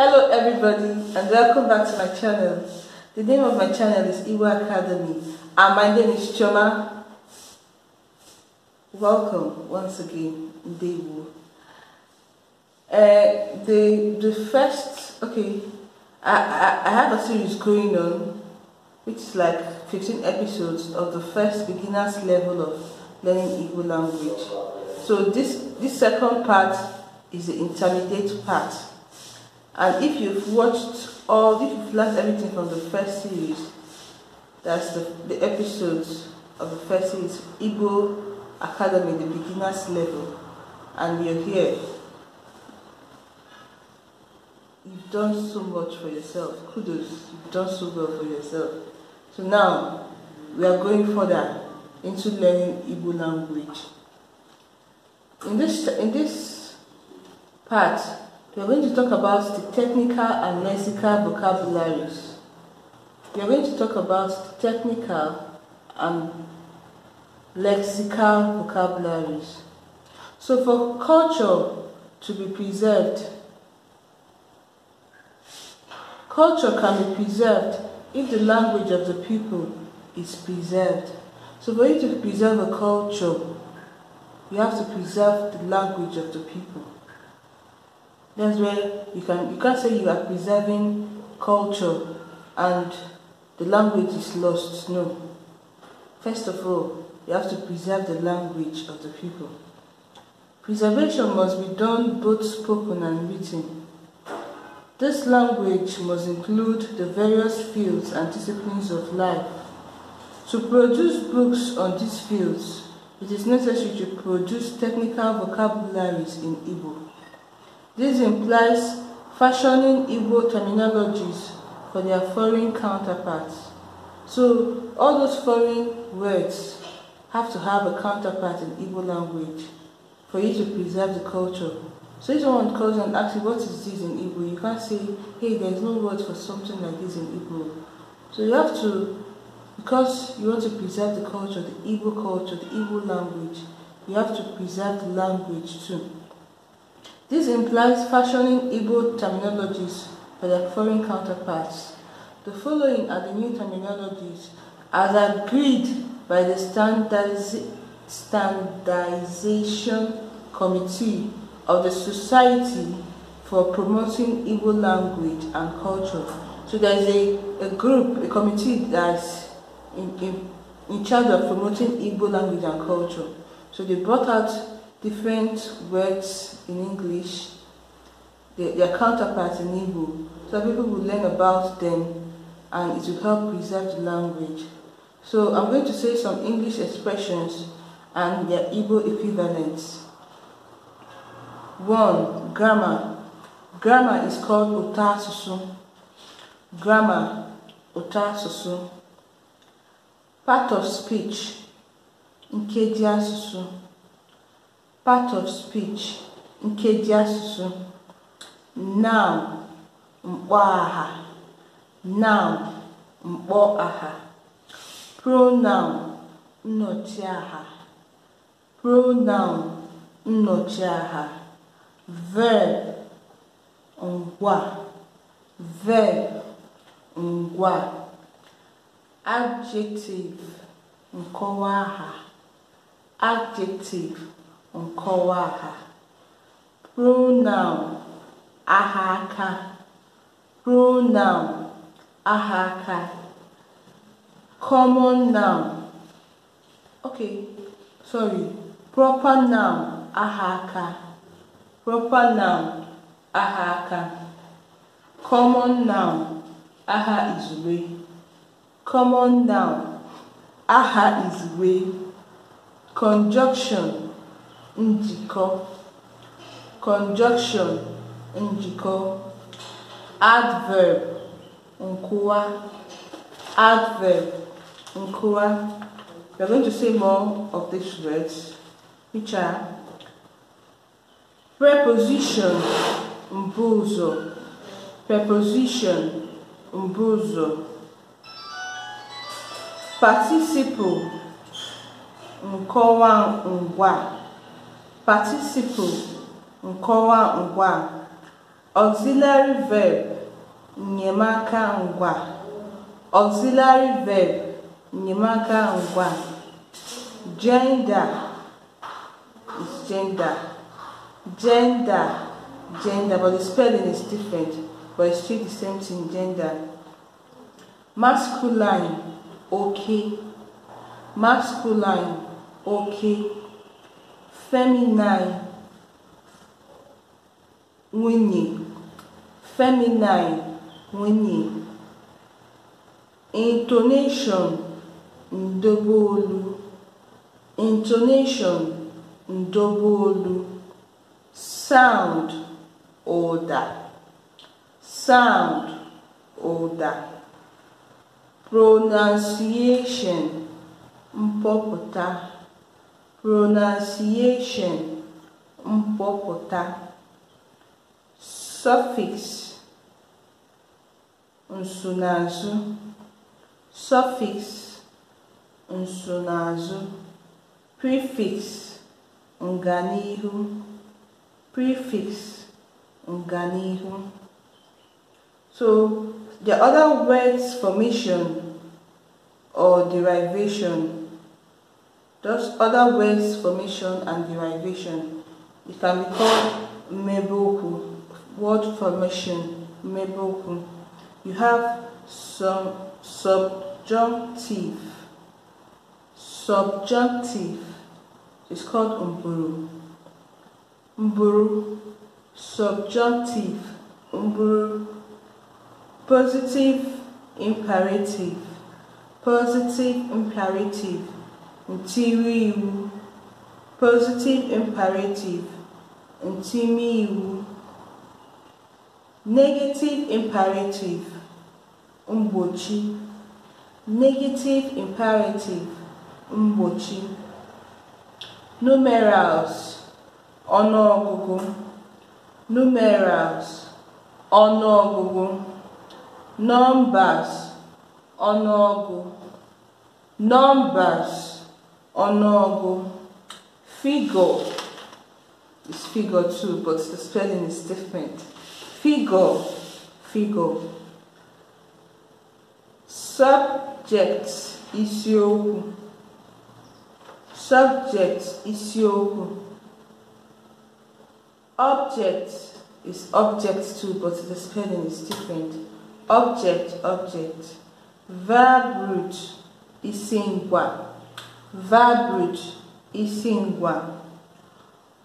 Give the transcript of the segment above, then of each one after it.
Hello everybody and welcome back to my channel. The name of my channel is Iwa Academy and my name is Choma. Welcome once again, Ndewu. Uh, eh, the, the first, okay, I, I, I have a series going on which is like 15 episodes of the first beginner's level of learning Igbo language. So this, this second part is the intermediate part and if you've watched all, if you've learned everything from the first series, that's the, the episodes of the first series, Igbo Academy, the beginner's level, and you're here, you've done so much for yourself. Kudos, you've done so well for yourself. So now, we are going further into learning Igbo language. In this, in this part, we are going to talk about the technical and lexical vocabularies. We are going to talk about the technical and lexical vocabularies. So for culture to be preserved, culture can be preserved if the language of the people is preserved. So for you to preserve a culture, you have to preserve the language of the people. That's where you can you can't say you are preserving culture and the language is lost. No. First of all, you have to preserve the language of the people. Preservation must be done both spoken and written. This language must include the various fields and disciplines of life. To produce books on these fields, it is necessary to produce technical vocabularies in Igbo. This implies fashioning evil terminologies for their foreign counterparts. So all those foreign words have to have a counterpart in Igbo language for you to preserve the culture. So if someone calls and asks you what is this in Igbo, you can't say, hey, there's no word for something like this in Igbo. So you have to, because you want to preserve the culture, the Igbo culture, the Igbo language, you have to preserve the language too. This implies fashioning Igbo terminologies for their foreign counterparts. The following are the new terminologies as agreed by the standardiz standardization committee of the Society for Promoting Igbo Language and Culture. So there's a, a group, a committee that's in, in, in charge of promoting Igbo language and culture. So they brought out different words in English, their, their counterparts in Igbo, so people will learn about them and it will help preserve the language. So I'm going to say some English expressions and their Igbo equivalents. One, grammar. Grammar is called otasusu. Grammar, otasusu. Part of speech, nkeji asusu. part of speech nkeji asụsụ noun mkpọaha noun mkpọaha pronoun nnochiaha pronoun aha verb ngwa verb ngwa adjective aha adjective nkọwa ha pronoun aha aka pronoun aha aka common noun ok sorry proper noun aha aka proper noun aha aka common noun aha izugbe common noun aha izugbe conjunction njikọ (conjunction njikọ), adverb nkwuwa (adverb nkwuwa). We are going to say more of these words, which are preposition mbuzo preposition mbuzo participle nkọwa ngwa Participle (nkọwa ngwa) Auxiliary verb (nyemaka ngwa) Auxiliary verb (nyemaka ngwa) Gender (gender) Gender (gender) but the spelling is different but it's still the same thing gender. Masculine okay Masculine okay feminine nwunye feminine nwunye intonation ndobeolu intonation ndobeolu sound ụda sound ụda pronunciation mpọpụta pronunciation mkpọpụta suffix nsonaazụ suffix nsonaazụ prefix nganihu prefix nganihu so the other words formation or derivation Thus, other words, formation and derivation. It can be called meboku, word formation, meboku. You have some subjunctive. Subjunctive is called umburu. Umburu, subjunctive, umburu, positive imperative, positive imperative. ntiri iwu positive imperative ntimi iwu negative imperative mgbochi negative imperative mgbochi numerals ọnụọgụgụ numerals ọnụọgụgụ numbers ọnụọgụ numbers Onogu. figo is figure too, but the spelling is different. Figo figo. Subject isiokwu. Subject isiokwu. Object is object too, but the spelling is different. Object, object. Verb root is same one. Verbiage Isingwa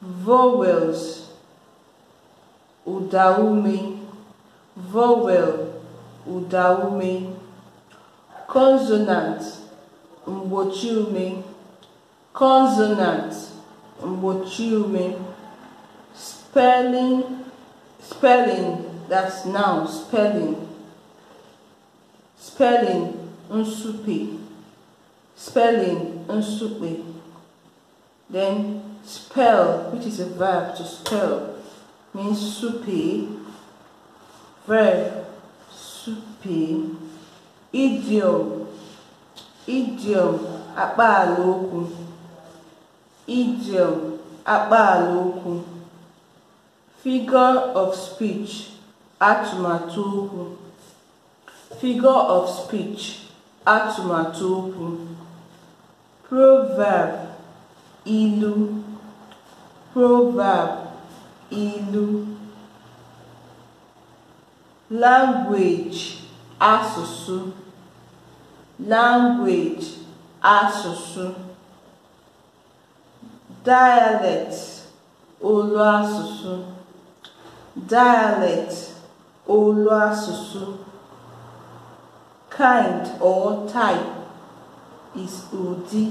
Vowels Udaume Vowel Udaume Consonant Mgbochiume Consonant Mgbochiume Spelling Spelling that's now spelling Spelling unsupi spelling, unsupe. Then spell, which is a verb to spell, means supe. Verb, supe. Idiom, idiom, abaloku, Idiom, abaloku. Figure of speech, atụmatụ Figure of speech, atụmatụ Proverb, ilu. Proverb, ilu. Language, asusu. Language, asusu. Dialect, olu asụsụ. Dialect, olu asụsụ. Kind or type. is ụdị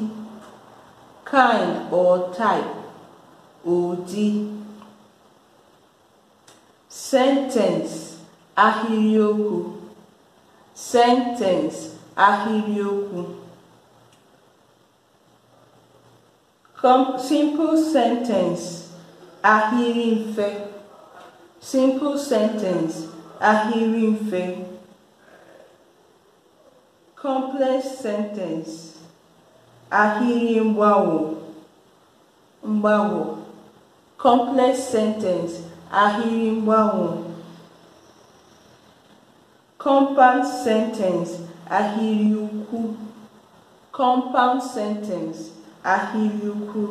kind or type ụdị sentence ahirioku sentence ahirioku ahịrịokwu simple sentence ahịrị mfe simple sentence ahịrị mfe complex sentence ahịrị mgbanwo mgbanwo complex sentence ahịrị mgbanwo compound sentence ahịrị ukwu compound sentence ahịrị ukwu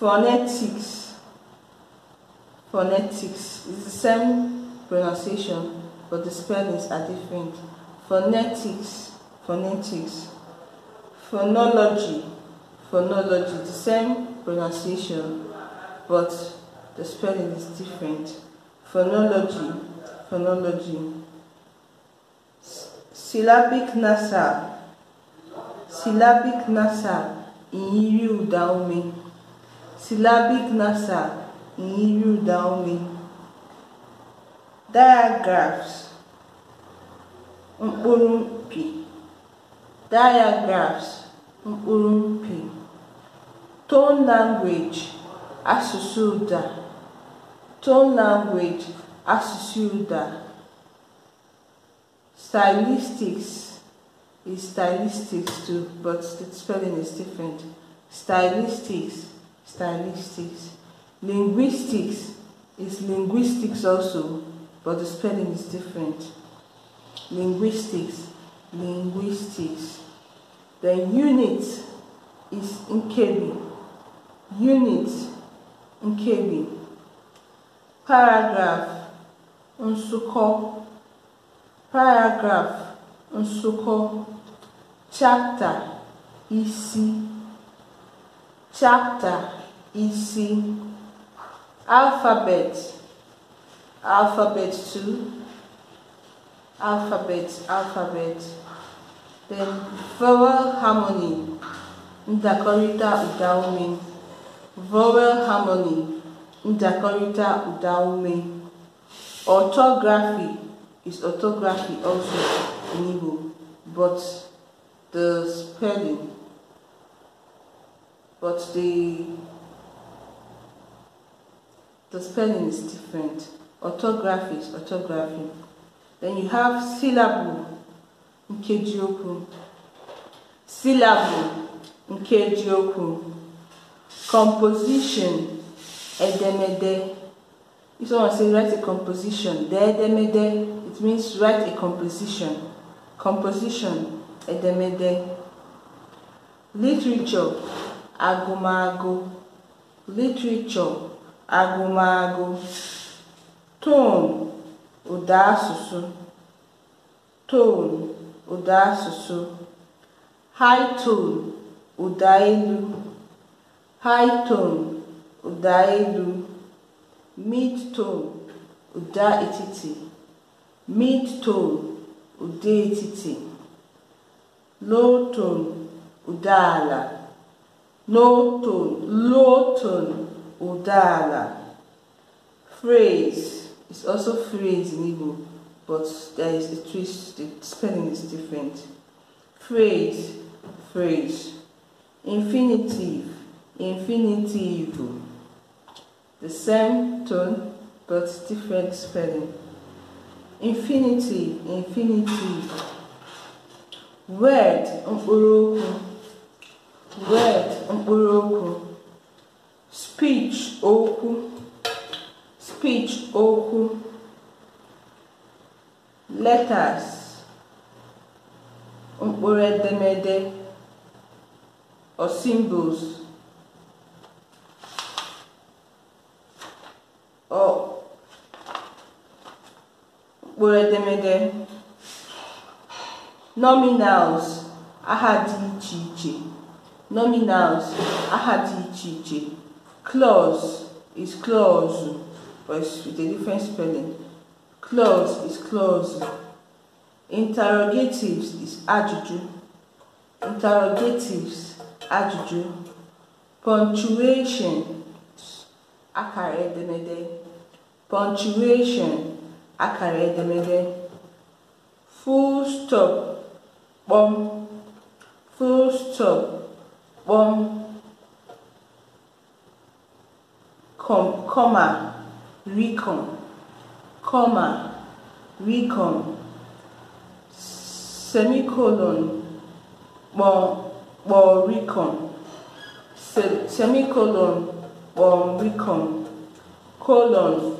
phonetics phonetics is the same pronunciation but the spellings are different phonetics, phonetics, phonology, phonology, the same pronunciation, but the spelling is different. Phonology, phonology, syllabic nasal, syllabic nasal, ìyírí ụ̀dà syllabic nasal, ìyírí ụ̀dà ume, mkpụrụ mpi diagrams mkpụrụ mpi tone language asụsụ ụda tone language asụsụ ụda stylistics is stylistics too, but the spelling is different. Stylistics, stylistics. Linguistics is linguistics also, but the spelling is different linguistics, linguistics. The unit is in Nkebi, unit in Nkebi. Paragraph Nsuko, paragraph Nsuko. Chapter Isi, chapter Isi. Alphabet, alphabet 2 alphabet, alphabet. Then vowel harmony, ndakọrịta ụda Vowel harmony, ndakọrịta ụda Orthography is orthography also in Igbo, but the spelling, but the the spelling is different. Orthography is orthography. Then you have syllable nkeji Syllable nkeji Composition edemede. If someone say write a composition, the edemede, it means write a composition. Composition edemede. Literature agumago. Literature agumago. Tone ụda asụsụ tonu ụda asụsụ high tone ụda elu high tone ụda elu mid tone ụda etiti mid tone ụda etiti low tone ụda ala no tone low tone ụda ala phrase it's also phrase in Igbo, but there is a twist, the spelling is different. Phrase, phrase. Infinitive, infinitive. The same tone, but different spelling. Infinity, infinitive. Word, mkpụrụ Word, mkpụrụ Speech, okwu speech okwu letters mkpụrụ edemede or symbols or mkpụrụ edemede nominals aha dị iche iche nominals aha dị iche iche clause is clause but it's with a different spelling. Clause is clause. Interrogatives is adjuju. Interrogatives, adjuju. Punctuation, akara edemede. Punctuation, akara edemede. Full stop, bom. Full stop, bom. Com comma. Recom, comma, recom, semicolon, bom, bom, recom, Se semicolon, bom, recom, colon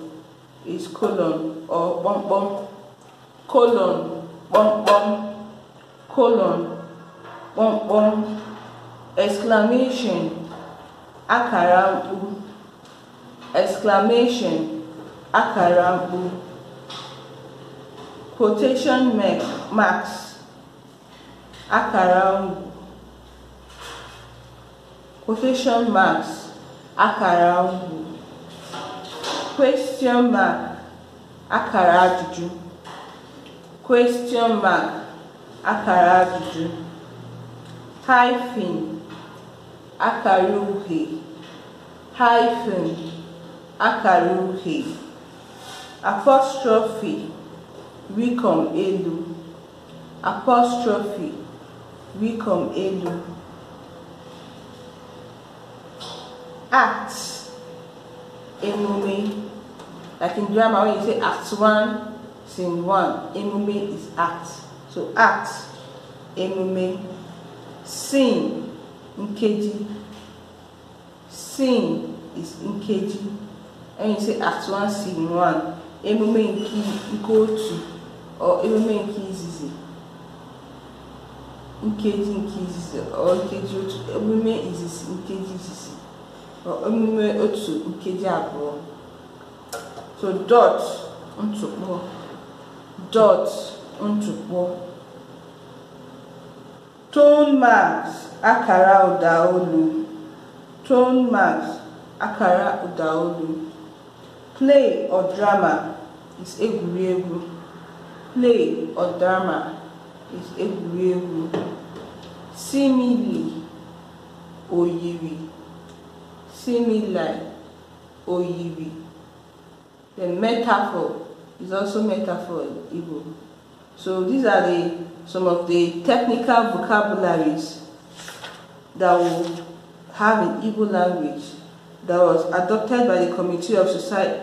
is colon or bom, bom, colon, bom, bom, colon, bom, bom, exclamation, akara, exclamation, akara quotation marks akara mkpu quotation marks akara question mark akara ajụjụ question mark akara ajụjụ hyphen akara uhie hyphen akara uhie apostrophe we come Elu apostrophe we come Elu act emume like in drama when you say act one Scene one emume is act so act emume sin nkeji Scene is nkeji and you say act one Scene one emume nke nke otu emume nke izizi nkeji nke izizi nkeji otu emume izizi nkeji izizi emume otu nkeji abụọ so dot ntụkpọ dot ntụkpọ tone marks akara ụda olu tone marks akara ụda olu Play or drama is egwuregwu. Play or drama is egwuregwu. Simile oyiri. Simile oyiri. The metaphor is also metaphor Igbo. So these are the some of the technical vocabularies that we have in Igbo language that was adopted by the Committee of, Society,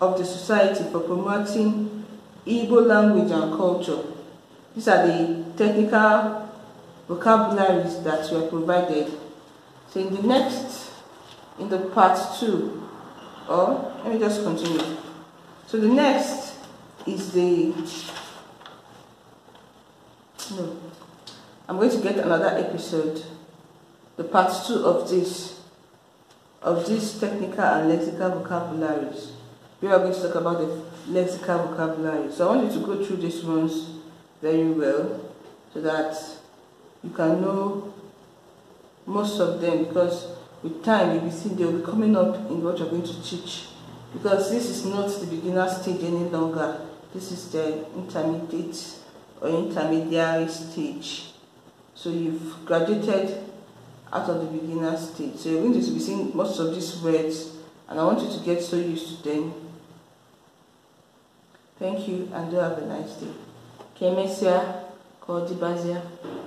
of the Society for Promoting Igbo Language and Culture. These are the technical vocabularies that were provided. So in the next, in the part two, or let me just continue. So the next is the, no, I'm going to get another episode, the part two of this of these technical and lexical vocabularies. We are going to talk about the lexical vocabulary. So I want you to go through these ones very well so that you can know most of them because with time you'll be seeing they'll be coming up in what you're going to teach because this is not the beginner stage any longer. This is the intermediate or intermediary stage. So you've graduated out of the beginner stage. So you're going to be seeing most of these words and I want you to get so used to them. Thank you and do have a nice day. Kemesia, Kodibazia.